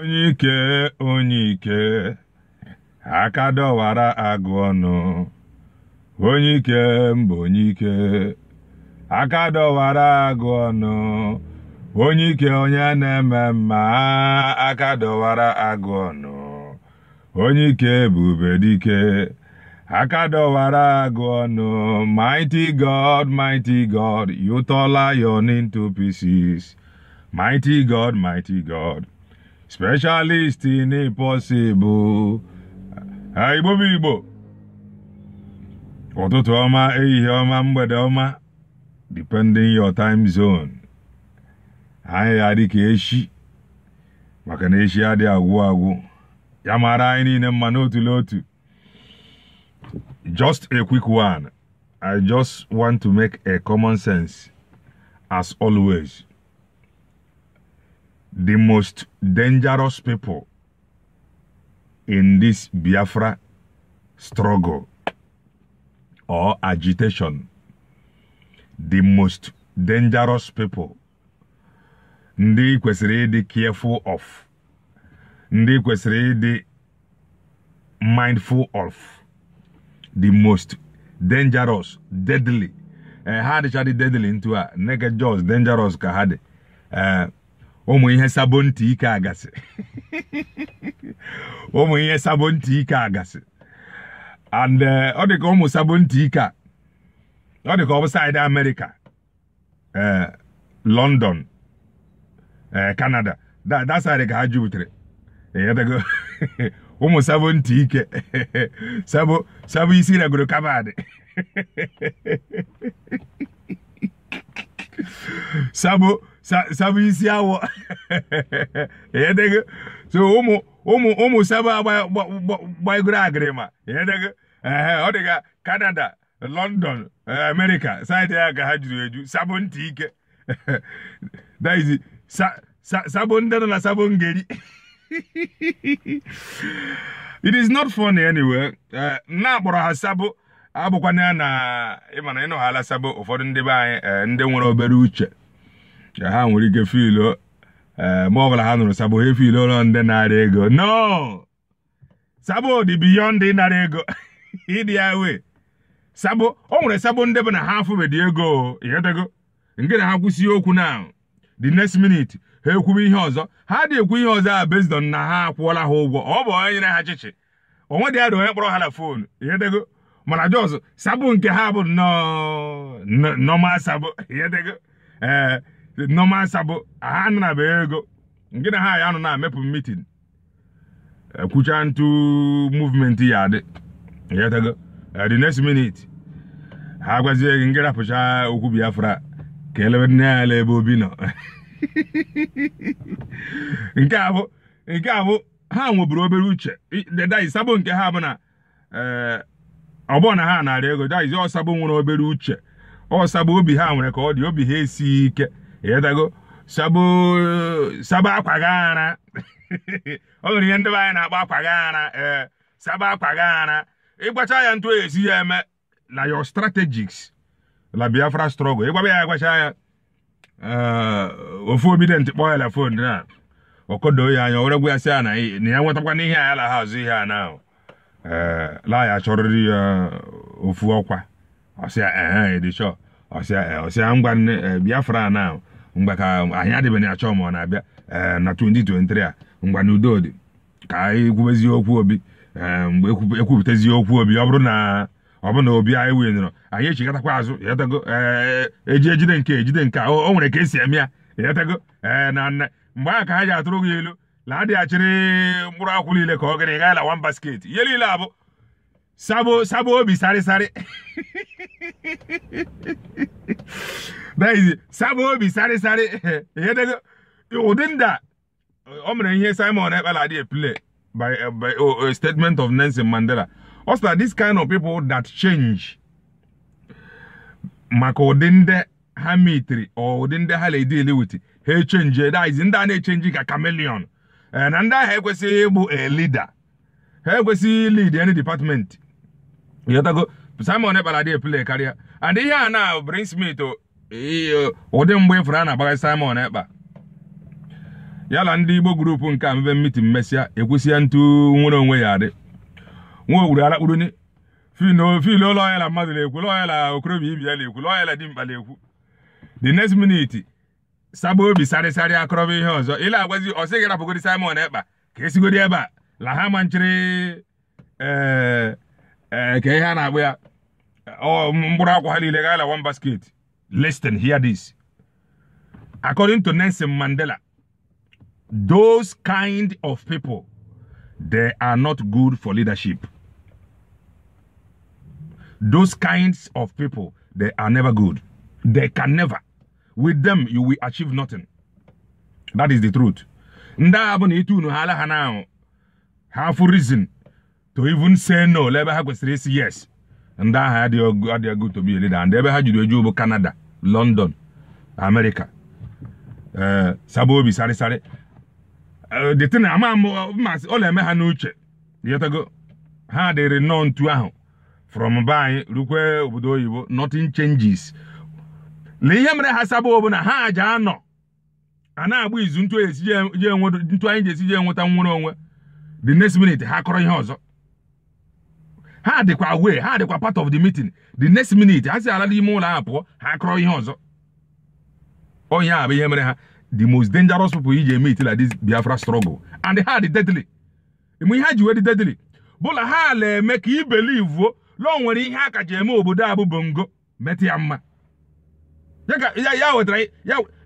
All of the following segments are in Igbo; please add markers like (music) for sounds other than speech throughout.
onye ike onye ike aka dọwara agụ ọnụ onye ike mbụ onye ike aka dọwara agụ ọnụ onye ike onye na-eme mma aka dọwara agụ ọnụ onye ike bụ ubedike aka dọwara agụ ọnụ mighty god mighty god you tọla into pieces mighty god mighty god specialist in impossible igbo bụ igbo ụtụtụ ọma ehihie ọma mgbede ọma depending your time zone anyị ya dị ka eshi maka na eshi adịghị agwụ agwụ ya mara anyị niile mma n'otu n'otu just a quick one i just want to make a common sense as always the most dangerous people in this Biafra struggle or agitation, the most dangerous people, ndị kwesịrị ịdị careful of, ndị kwesịrị ịdị mindful of, the most dangerous, deadly, eh, ha hard shadi deadly into a, naked jaws dangerous ka ụmụ ihe sabo ntị ike agasị (laughs) ụmụ ihe sabo ntị ike agasị and uh, ọ dị ka ụmụ sabo ntị ike a ọ dị ka ọ bụ saịdị amerịka uh, london uh, canada dasaịdị ka ha jubutere ịghọtago (laughs) ụmụ sabo ntị ike (laughs) sabo sabo isi ragoro kabadị sabo sabu isi awọ (laughs) edego so ụmụ ụmụ ụmụ saba gbaigoro agịrịma ọ dịga kanada London eh, America saịdị ya ka ha jiri eju sabụ ntị ike daizi sabụ ndị nọ na sabụ ngeri (laughs) it is not funny anyway eh, na akpọrọ ha sabụ abụkwana ya na ịma na ịnọghala ụfọdụ ndị be anyị eh, ndị nwere obere uche ha nwere ike filu eh, ma ọbụla ha nụrụ Sabo he filu ụlọ ndị narị ego no Sabo dị beyond ịnara ego (laughs) ịdị ya wee Sabo o nwere Sabo ndị bụ na ha afụbedị ego ịghọtago nke na ha kwụsị okwu na the next minute ha ekwube ihe ọzọ ha dị ekwu ihe ọzọ a based na ha akwụọla ha ụgwọ ọ bụ onye nyere ha chịchị onwe dị adị onye kpọrọ ha na foonu ịghọtago mana jọs Sabo nke ha bụ nọọma Sabo ịghọtago ee eh, nọma nsa bụ ha anụ na bee ego nke na ha ya anụ na amepụ mitin ekwucha ntụ muvmenti ya adị yetago e, the next minute ha gwazie gị nke rapụcha okwu biafra ka elebe nne ya ele ebe obi nọ (laughs) nke a nke a ha nweburu obere uche ddsabo nke ha bụ na e, ọbụ na ha narị ego daiz ọsabo nwere obere uche ọ ọsabo obi ha nwere ka ọ dị obi ha esighị ike ịtago saba akwa gị (laughs) ọ nwere ihe ndị be anyị na-akpọ akwa gị ee eh, saba akwa gị ara ịgbacha ya ntụ esi ya eme na yo strategies la biafra strọgl ịgbaba ya agbacha ya eh, ofu obi ntịkpọ kpọọ ya fon na ọkọdoo ya anya were gwa ya sị ya na ya nwetakwa n'ihe a ya la ha azụ ihe a na ee eh, laa ya chọrịrị ya ofu ọkwa ọ sị ya ehe dị ọsịa ngwa biafra na mgbe ka anyị adịbeghị achọ ma ọ na-abịa na 2023 a ngwa na udo dị ka anyị okwu obi mgbe ekwupụtazie okwu obi ọ bụrụ na ọ bụrụ na obi anyị winyerọ anyị echigatakwa azụ yatago eji ejide nke ejide nke o nwere ka esi eme ya yatago na nna mgbe ahụ ka ha ji atụrụ gị elu na adịghachiri mkpụrụ akwụ niile ka ọ gịnị gaa la wan basket ihe niile abụ Sabo, Sabo Obi, sorry, sorry. that is it. Sabo Obi, sorry, sorry. Here they go. Within that, I'm going to hear Simon by, uh, by uh, a statement of Nelson Mandela. Also, this kind of people that change, maka odinde ha mitiri odinde ha na-edili ha echenji daizi ndị a na-echenji ka chameleon na ndị ahụ ekwesịghị ịbụ a leader ha ekwesịghị lead any department ịghọtago Simon Ekpala play karịa and ihe a na Brain Smith ụdị mgbe ifuru a na Simon Ekpa ya na ndị Igbo gurupu nke amebe mitin mesịa ekwesịa ntu nwere onwe ya adị nwa ogburu alakpuruni fil ụlọ ọhịa na mmadụ na-ekwu ụlọ okorobịa ibi ya na-ekwu ụlọ ọhịa na di na-ekwu the next minute saba obi sarịsarị akọrọba ihe ọzọ ila agwazi ọ sịghị rapụgodi Simon Ekpa ka esigodi ebe a la ha manchiri ee eh, Okay, eh, Hana, oh, we are. One basket. Listen, hear this. According to Nelson Mandela, those kind of people, they are not good for leadership. Those kinds of people, they are never good. They can never. With them, you will achieve nothing. That is the truth. Nda abụ na itu unu hanao. alaha reason. to even say no ebe ha kwesịrị isi yes ndị aha adịghị good to be leader and ebe ha jiri eju bụ Canada London America ee eh, sarịsarị eh, the thing ama masị ọ na-eme ha n'uche yetago ha dịrị nnọọ ntu ahụ from be anyị rukwe obodo oyibo nothing changes na ihe mere ha Sabaobi bụ na ha aja anọ a na-agba izu ntu e anyị ji esi je enweta nnwere onwe the next minute ha kọrọ ihe ọzọ ha dịkwa wee ha dịkwa part of the meeting the next minute ha si ala n'ime ụlọ ahụ pụọ ha akọrọ ihe ọzọ onye oh, a bụ ihe mere ha the most dangerous people iji eme itila this biafra struggle and ha dị deadly ime ihe ji wee dị deadly bụla ha ala eme ka ibelivuo lọ nwere ihe a eme obodo a bụ bongo metụ ya mma ya wetara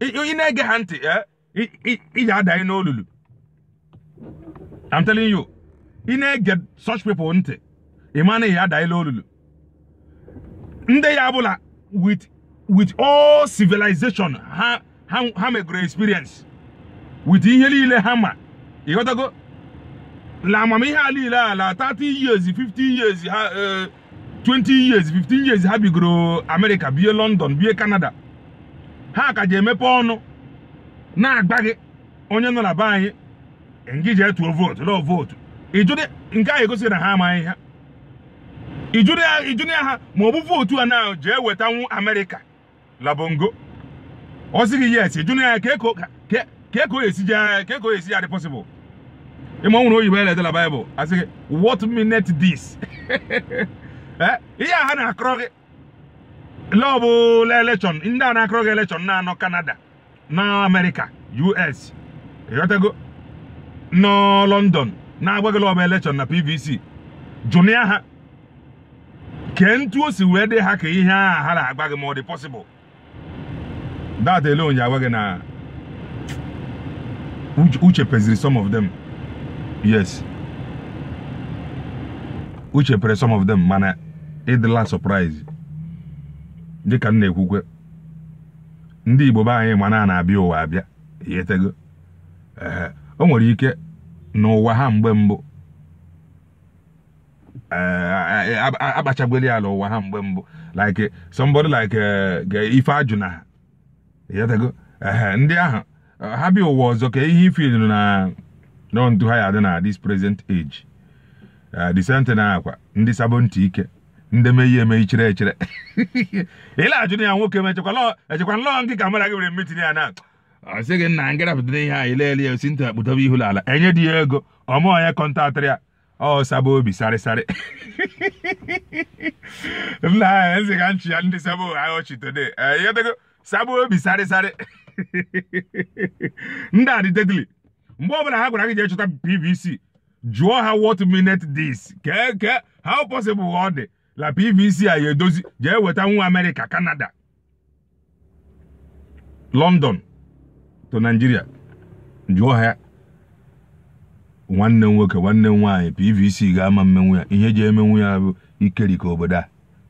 ị na-ege ha ntị eh, iji adanyị n'olulu I'm telling you ị na-ege such people ntị ị ma na ihe adaela olulu ndị ya bụla with with all civilization ha ha megoro experience with ihe niile ha ma ịghọtago na amamihe a niile ala 30 years 50 years ha 20 eh, years 15 years ha bigoro America bie London bie Canada ha ka ji emepe ọnụ na-agba gị onye nọ na be anyị ngije tuo vootu lọọ vootu ị jụdị nke a egosi na ha amaghị ha ijunia ha ma ọ bụ votu a na jee wetanwu amerịka labongo ọ sị gị yes ijunia ya ka eko esi ya dị pọsịbụl ịma nwere oyibo eletela baịbụl asị gị what minute this (laughs) eh, ihe a ha na-akọrọ gị lọ bụ elekshọn ndị a na-akọrọ gị elekshọn na-anọ kanada na amerịka us ịghọtago nọ lọndọn na-agwa gị lọbụ elekshọn na pvc jụnịa ha nke ntu o si wee dị ha ka ihe a ha na agba gị ma ọ dị pọsịbụl dat onye agwa gị na uche peziri some of them yes uche pere some of them mana ịdịla surprise dị m na-ekwukwe ndị igbo anyị mana na na-abịa ụwa abịa o nwere ike n'ụwa ha mgbe mbụ Eh, akpachagweli ala ụwa ha mgbe mbụ like somebody like eh, ife ajụna yatago ndị ahụ eh, ha bịa ụwa ọzọ ka ihe ife nọ na nọntu ha ya dị na this present age the same na akwa ndị sabo ntị ike ndị meyi eme ichere echere ịla (laughs) ajụ ya nwoke m echekwa lọọ nke kamera gị were mitin ya na ọ sị gị nna ngịrapụtara ihe anyị leele ya osi ntị akpụtaba ihu n'ala enye dị ya ego ọmụọ ya kọntaktịrị ya ọ saba obi sarịsarị nna anyị ezi ka nchi ya ndị saba ọchị go yotego saba obi sarịsarị ndị a dịdedili mgbe ọbụla ha gwara gị jee chọta pvc jụọ ha what minute this kee kee how possible ọ dị la pvc a ya edozi jee weta nwa amerịka kanada london to Nigeria. jụọ ha ya nwanne m nwoke nwanne m nwaanyị pvc ga-ama mmenwu ya ihe ji emenwu ya bụ ikerika obodo a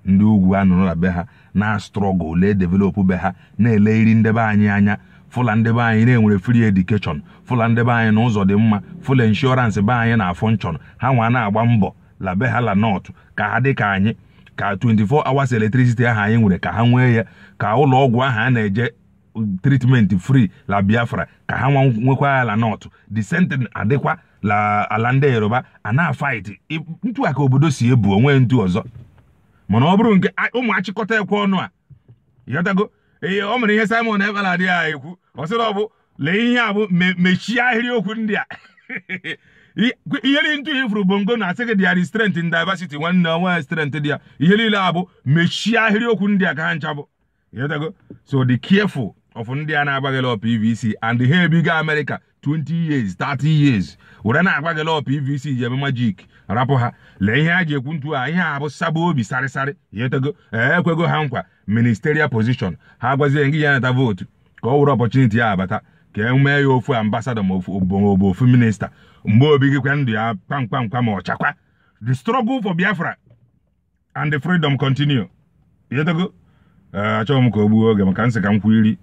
ndị ugwu a nụrụ be ha na strọgụl lee develop be ha na-ele iri ndebe anyị anya fụla ndebe anyị na-enwere free edukeshọn fụla ndebe anyị na ụzọ dị mma fụla inshọransị be anyị na afọnchọn ha nwa na-agba mbọ la be ha la nọt ka ha dị ka anyị ka 24 hours electricity ahụ anyị nwere ka ha nwee ya ka ụlọ ọgwụ ahụ a na-eje treatment fri la biafra ka ha nwa nwekwa ya la nọt the sentence adịkwa la ala ndị yoruba a na-afaịtị ntu a obodo si ebu onwe ntu ọzọ mana ọ bụrụ nke ụmụ achịkọta ekwe ọnụ a yọtago ee ọ mere ihe simon ebala adịghị ha ekwu ọ sịrị ọ bụ lee ihe a bụ mechie ahịrịokwu ndị a (laughs) ihe niile ntu ifuru bongo na asị gị dị ya strength in nwanne onwe strength dị ya ihe niile a bụ mechie ahịrịokwu ndị a ka ha ncha bụ yọtago so dị careful of ndị a na-agbaghịla PVC and ha ebigo Amerịka. 20 years 30 years were na-agwa gị lọ pvc ji eme majik rapụ ha lee ihe a ji ekwu ntu a ihe a bụ saba obi sarịsarị yetego ekwego ha nkwa ministerial position ha gwazie gị ya nata vootu ka ọ wụrụ ọpọchuniti ya abata ka e mee ya ofu ambasada ma obobo ofu minista mgbe obi gị kwa ndụ ya kpamkpamkpa ma ọchakwa the struggle for biafra and the freedom continue yetego achọghị m ka o gbuo oge maka nsị ka m iri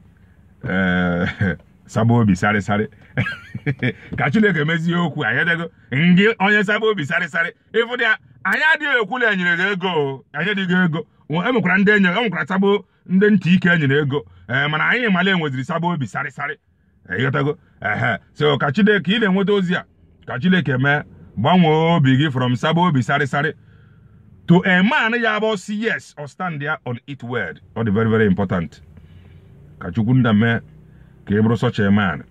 ee (laughs) saba obi sarịsarị (laughs) ka chineke mezie okwu anyị adịgo ndị onye saba obi sarịsarị ịfụ dị ya anyị adịghị ekwula enyere gị ego anyị adịghị ego enwekwara ndị enye enwekwara saba ndị ntị ike enyere ego ee eh, mana anyị mala enweziri saba obi sarịsarị eh, ịghọtago ehe so ka chineke ị na-enweta ozi a ka chineke mee gbanwee obi gị from saba obi sarịsarị to a man ya bụ si yes or stand there on it word ọ dị very very important ka chukwu nda mee ka ị bụrụ such a man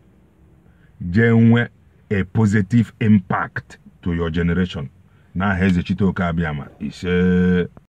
jee nwee a positive impact to your generation n'aha eze Chiteoke Abiama ise